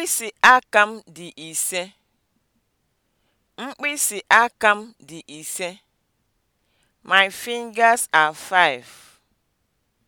Mkpịsị aka m dị ise. Mkpịsị aka m dị ise. My fingers are five.